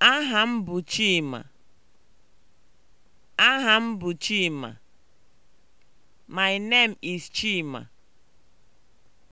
Aha m bụ Chima. Aha m bụ Chima. My name is Chima.